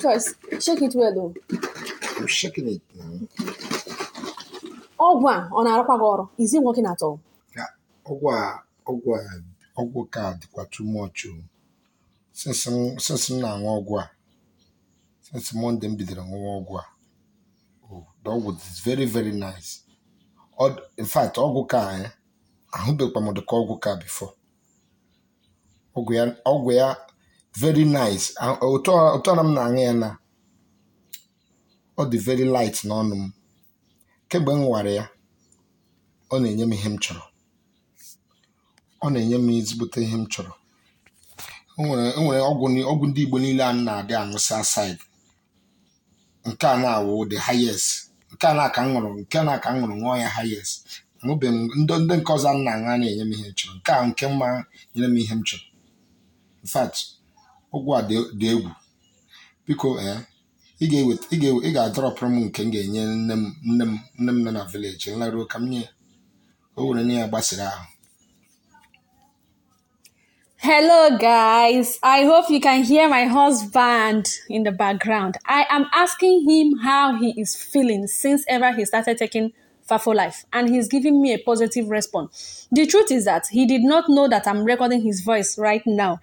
Choice, shake it well though. I'm shaking it now. ọgwụ a ọ na-arụkwa gị ọrụ is it working at all? ọgwụ a ọgwụ a ọgwụ ka dịkwa too much o since m na-aṅụ ọgwụ a since Monday m bidoro ṅụwa ọgwụ a the ọgwụ is very very nice in fact ọgwụ ka ahụbekwa m dịka ọgwụ ka before ọgwụ ya very nice ụtọ na m na-aṅụ ya na ọ dị very light n'ọnụ m kemgbe m nwara ya ọ na-enye m ihe m chọrọ ọ na-enye m ezigbote ihe m chọrọ enwere ọgwụ ndị Igbo niile a na-adị aṅụsị asaid nke a na-awụ the highest nke a na-aka nṅụrụ nke na-aka nṅụrụ nwụọ ṅụọ ya highest aṅụbeghị m ndị nke ọzọ m na-aṅụ a na-enye m ihe m chọrọ nke a nke mma nyere m ihe m chọrọ in ụgwọ a dị egwu biko eh, ị ga-adọrọpụrụ m nke m ga-enye nne m nne m nne m nọ na vileji nlaruo ụka m nye o were gbasiri ahụ Hello, guys. I hope you can hear my husband in the background. I am asking him how he is feeling since ever he started taking Fafo Life, and he's giving me a positive response. The truth is that he did not know that am recording his voice right now.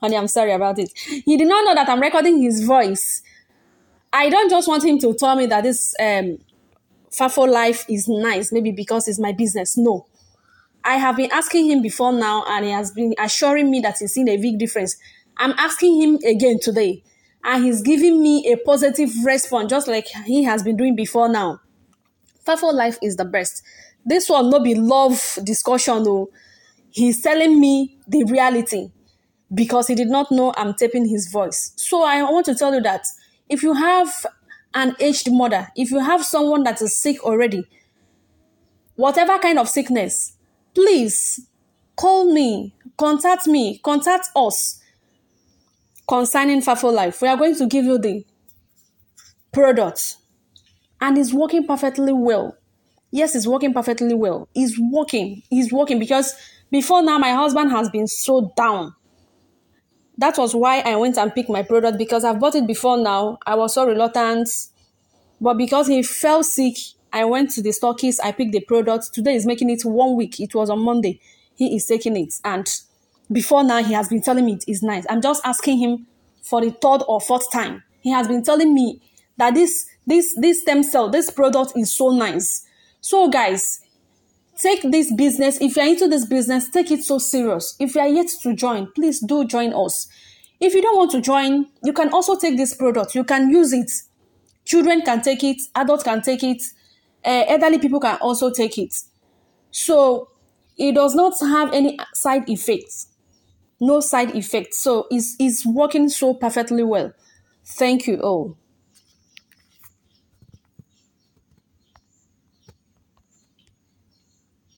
Honey, I'm sorry about it. He did not know that I'm recording his voice. I don't just want him to tell me that this um, Fafo life is nice, maybe because it's my business. No. I have been asking him before now, and he has been assuring me that he's seen a big difference. I'm asking him again today, and he's giving me a positive response, just like he has been doing before now. Fafo life is the best. This one no be love discussion, though. He's telling me the reality. because he did not know I'm taping his voice. So I want to tell you that if you have an aged mother, if you have someone that is sick already, whatever kind of sickness, please call me, contact me, contact us concerning Fafo Life. We are going to give you the product and it's working perfectly well. Yes, it's working perfectly well. It's working. It's working because before now my husband has been so down that was why I went and picked my product because I've bought it before now. I was so reluctant. But because he fell sick, I went to the stockist, I picked the product. Today is making it one week. It was on Monday. He is taking it. And before now, he has been telling me it is nice. I'm just asking him for the third or fourth time. He has been telling me that this this this stem cell, this product is so nice. So guys, take this business if you're into this business take it so serious if you are yet to join please do join us if you don't want to join you can also take this product you can use it children can take it adults can take it uh, elderly people can also take it so it does not have any side effects no side effects so it's, is working so perfectly well thank you all